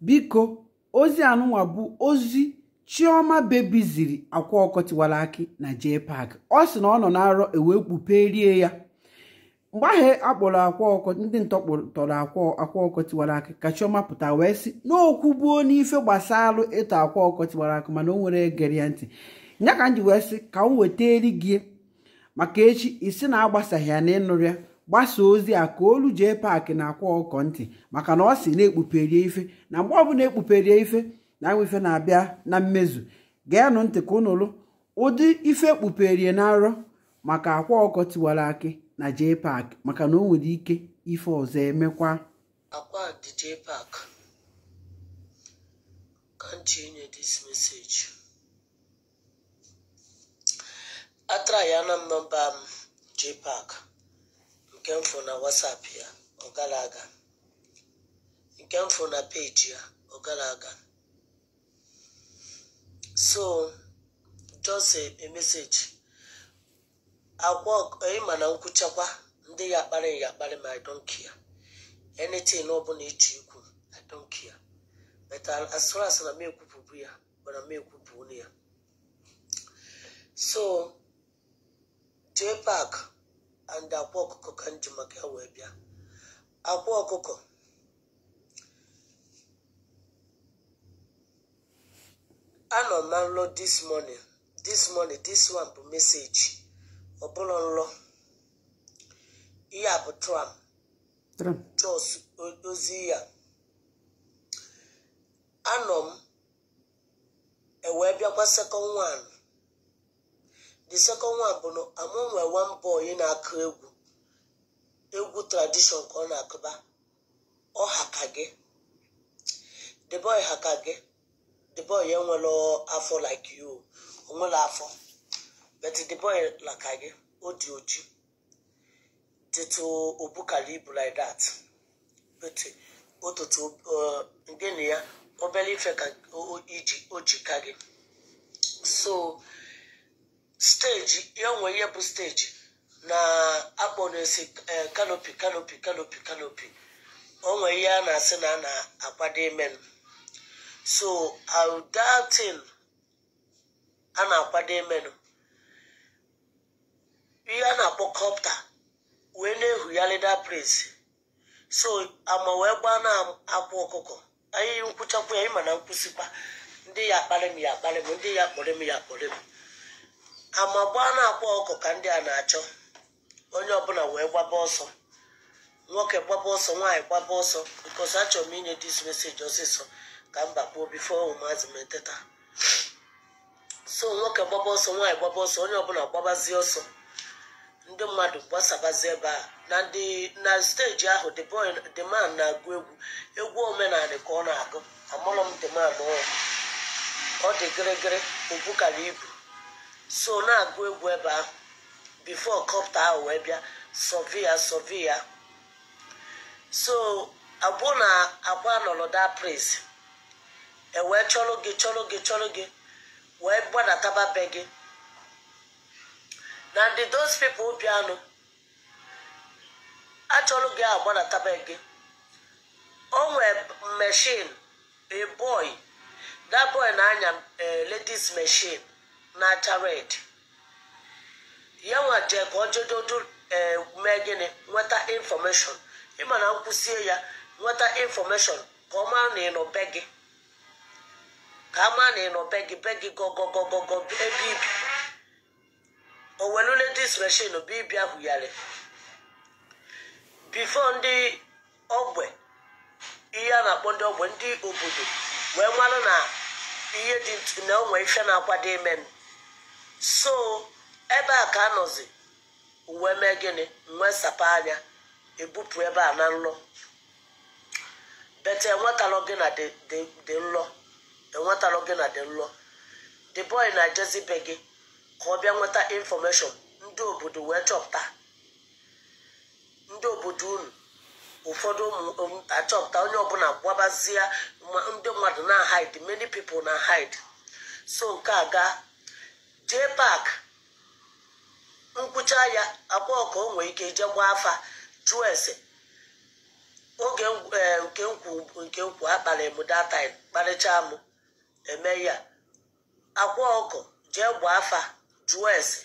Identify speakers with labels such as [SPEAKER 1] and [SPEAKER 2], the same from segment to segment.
[SPEAKER 1] biko ozi anụnwa bụ ozi chioma bebiziri akwa ọkọ tiwara akị na jee paak ọ sị na ọ nọ na-arọ ewee kpuperie ya mgbe ahụ akpọrọ akwa ndị ntọkpọtọrọ akwa ọkọ akị ka chioma pụta wee sị n'okwu buo n'ife gbasara ịtọ akwa ọkọ akị mana o nwere gere ya ntị ya ka m ji wee sị ka m weta eri gị maka echi isi na agbasaghị ya na ịnụrụ ya gbasa ozi a ka olu jee paakị na-akwa ọkọ ntị maka na ọ si na-ekpuperie ife na mgbe ọbụla ekpuperie ife na anwa ife na-abịa na mmezu nụ ntị ka unu ụdị ife ekpuperie na arọ maka akwa ọkọ tiwara akị na jee paakị maka na o nwere ike ife ọzọ emekwa akwa dị
[SPEAKER 2] nke mfụ na WhatsApp ya ọ gara aga nke mfụ na peji ya ọ gara aga so just a, a message ịma na nkwụchakwa ndị ya akparị ya akparị ma I ya care anything ọ bụla ịchọ ikwu I don't care but na m ekwupụbụ ya mana m ekwupụ ya so jee pak and akwa ọkụkọ ka m maka ya wee bịa akwa ọkụkọ anọ na nlọ this morning this morning this one bụ meseji ọ nlọ ihe bụ tram jos ozi ya anọ m ewee eh, bịakwa second one the second one bụ na amụ nwe one boy na-akụ egwu egwu tradishọn ka ọ na-akụba ọ haka gị the boy haka gị the boy enwere afọ like you onwere afọ but the boy laka gị o dị oji dịtụ obukara ibu like that but ụtụtụ uh, ngene ya obere ife ka o ji ka gị so steji ya nwe ihe bụ steji na akpọnesi kanopi eh, kanopi kanopi kanopi onwe ihe a na-asị na a na-akwado ime so audatin a na-akwado imenu ihe a na-akpọ kọpta wee na-ehugharịda praise so ama wee gbaa na-akwa ọkụkọ anyị nkwụchakwa ya ịma na nkwụsịkwa ndị ya akparị m ya akparị m ndị ya kpọrọ m ya kpọrọ m gbaa na-akpa ọkụ ka ndị a na-achọ onye ọbụla wee gbaba ọsọ nwoke gbaba ọsọ nwaanyị gbaba ọsọ bikos achọrọ m inye dis meseji ọsịsọ ka m bakpuo bifo ụmụazị m so nwoke gbaba ọsọ nwaanyị gbaba ọsọ onye ọbụla gbabazie ọsọ ndị mmadụ gbasabazi ebe a na ndị na steji ahụ the man na-agụ egwu egwu omenala ka ọ na-agụ amụrụ m the ọ dị gịrịgịrị obu kara ibu so na-agụ egwu ebe ahụ bifo kọpta ahụ wee bịa sovia sovia so abụọ na agba nọrọ da pris ewee chọrọ gị chọrọ gị chọrọ gị wee gbadataba be gị na ndị those people bịanụ achọrọ gị agbadataba gị o nwee mechin a boy that boy na-anya eh, ladies mechin na-acha red ya nwa ka ọ jedodo ee eh, mee gịnị nweta infọmeshọn ịma na nkwụsie ya nweta infọmeshọn ka ọ mara na ịnọ be gị ka mara na ịnọ be gị be gị gogogogogo ebe ibi o welule dis bụ ibi ahụ yari bifo ndị ogbe ihe a na-akpọ ndị ogbe ndị obodo wee marụ na ihe dị na onwe ife na-akwado ime so ebe a ka anọzi uwe mee gịnị nwee sapa anya ebupụ ebe a na nlọ bete enwetalụ gị na dị nlọ enwetalụ gị na dị nlọ the boy na-ejezi gị ka ọ bịa nweta infọmeshọn ndị obodo wee chọpụta ndị obodo unu ụfọdụ ụmụ achọpụta onye ọbụla gwabazie ndị mmadụ na hide many people na hide so nke a jee pak nkwụcha ya akwa ọkọ o nwee ike jee gbaa afa jụọ ese oge e, nke nkwu nke nkwu akpalị m data kparịcha m eme ya akwa ọkụ jee gbaa afa jụọ ese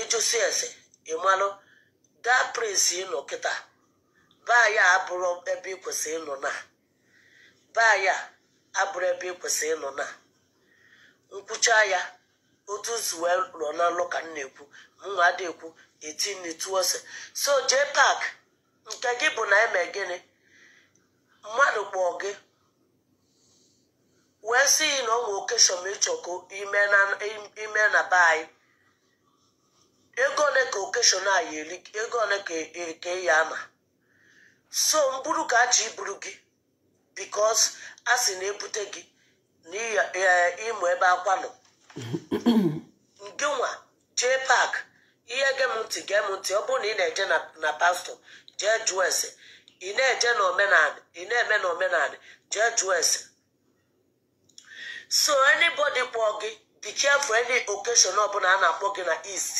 [SPEAKER 2] ịjụsi ese ịmalụ daa prince ịnọ kịta baa ya abụrụ ebe ịkwụsị ịnọ na baa ya abụrụ ebe ị ịnọ na nkwụcha ya otu nsi wee na n'alụ ka m na-ekwu mụnwa adị ekwu 18 ose so jee pak nke gị bụ na eme gịnị mmadụ kpọọ gị wee si yi na ọ nwee okeshọn ịchọkọ ime na be anyị ego ole ka okeshọn a ya ego ole ka eyi e ama so mburu ka achọ iburu gị bikos a si na ebute gị ịmụ ebe akwa nọ gịnwa jee pak ihe gem ntị gem ntị ọ bụrụ na ị na-eje na pastọ jee jụọ ese ị na-eje na ị na-eme na omenala jee jụọ ese so anybody kpọọ gị be careful any occasion ọbụla a na-akpọ gị na east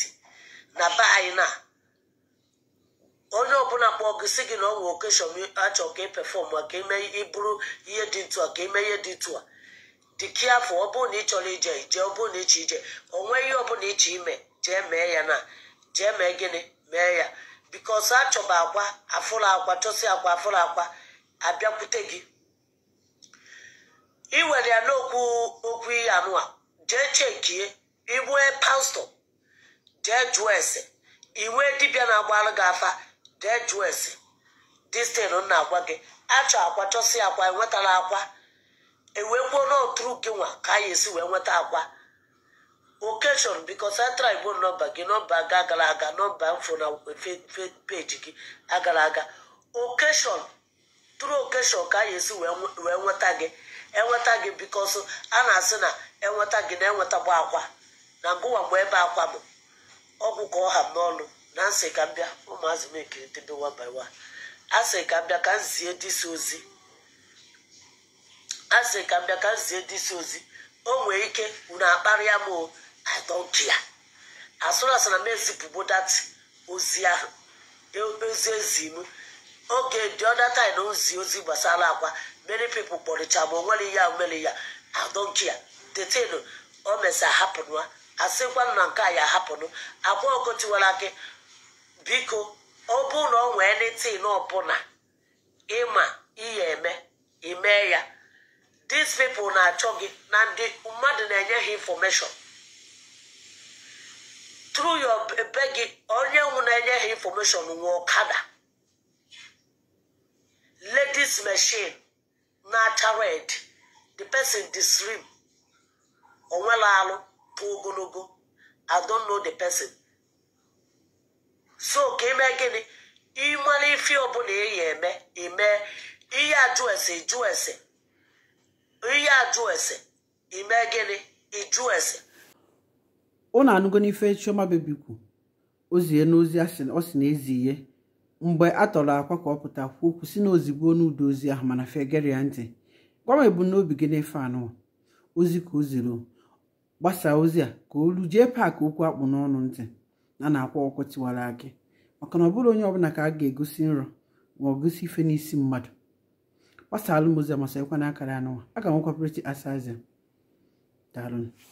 [SPEAKER 2] na be anyị na onye ọbụla kpọọ gị si gị na ọ nwee okeshọn achọ ka ị pefọm ka ime ịbụrụ ihe dị ntụ a ka mee ihe dị ntụ a dikia afọ ọ bụrụ na ị chọrọ ije ije ọ bụrụ na ịche ije o nwee ihe ọbụla iche ime jee mee ya na jee mee gịnị mee ya bikos achọba akwa afụrụ akwa chọsi akwa afụrụ akwa abịakwute gị ị were ya n'okwu okwu ihe anụa jee chekie ibue pastọ jee jụọ ese iwe dibịa na agbara gị afa jee jụọ ese distin na-agwa gị achọ akwa chọsi akwa enwetala akwa ewee gbuo n'ọtụrụ gị nwa ka anyị esi wee nweta akwa okeshọn biko central igbo nọmba gị nọmba ga agara aga nọmba mfo na peji gị agara aga okeshọn tụrụ okeshọn ka anyị esi wee nweta gị enweta gị biko so a na-asị na enweta gị na enwetagbu akwa na ngụwa mgbe ebe akwa m ọgwụ ka ọha m n'ọnụ na nsị ka m bịa ụmụazị m ekiri tebe one by one a sị ka m bịa ka m zie disi ozi a sị ka m bịa ka m ndị isi ozi o nwee ike unu akparịa m o i don't m dat ozi ahụ e ozi ezi m oge dị ọda na ozi ozi gbasara akwa many people kpọrịcha ma onwere ya mere ya i don't detin o mesa hapụnụ asịkwanụ na nke a ya hapụnụ agwa ogotiwara gị biko ọ bụrụ na ọ nwee netin ọbụla dis na-achọ gị na ndị mmadụ na-enye ha infọmeshọn tru yo e, be gị onye nwụ na-enye ha infọmeshọn nwe ọkada ladies machine na-acha red the person disrim onwela alụ pụ ogologo I know the person so ka ime gịnị ịmara ife ọbụla eyi eme ime ihe ajụ ese jụ ese ajụ ese ime gịnị ese
[SPEAKER 1] anụgo n'ife chioma bebikwu ozie n'ozi ọ sị na ezi ihe mgbe a tọrọ akwa ka ọ pụta kwuo okwu si na ozigbo n'ụdọ ozi ahụ mana fegere ya ntị gwa m ebumnobi gị n'efe anụ ozi ka o ziri gbasaa ozi a ka olu jee paakị okwu akpụ n'ọnụ ntị na na-akwa ọkụ tiwara gị maka na ọ bụrụ onye ọbụla ka a ga-egosi nrọ ma ọ gosi ife n'isi mmadụ wasu m ozi amasịkwa na akara anụwa aga m nkwapụrịta asaze daalụ